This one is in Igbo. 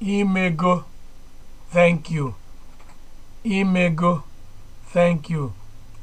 imego thank you imego thank you